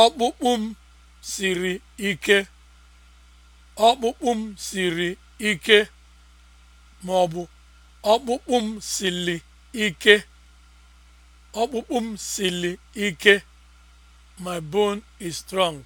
Ọkpụkpụ m siri ike. Ọkpụkpụ m siri ma ọ bụ ọkpụkpụ m sili ike. Ọkpụkpụ m sili ike. My bone is strong.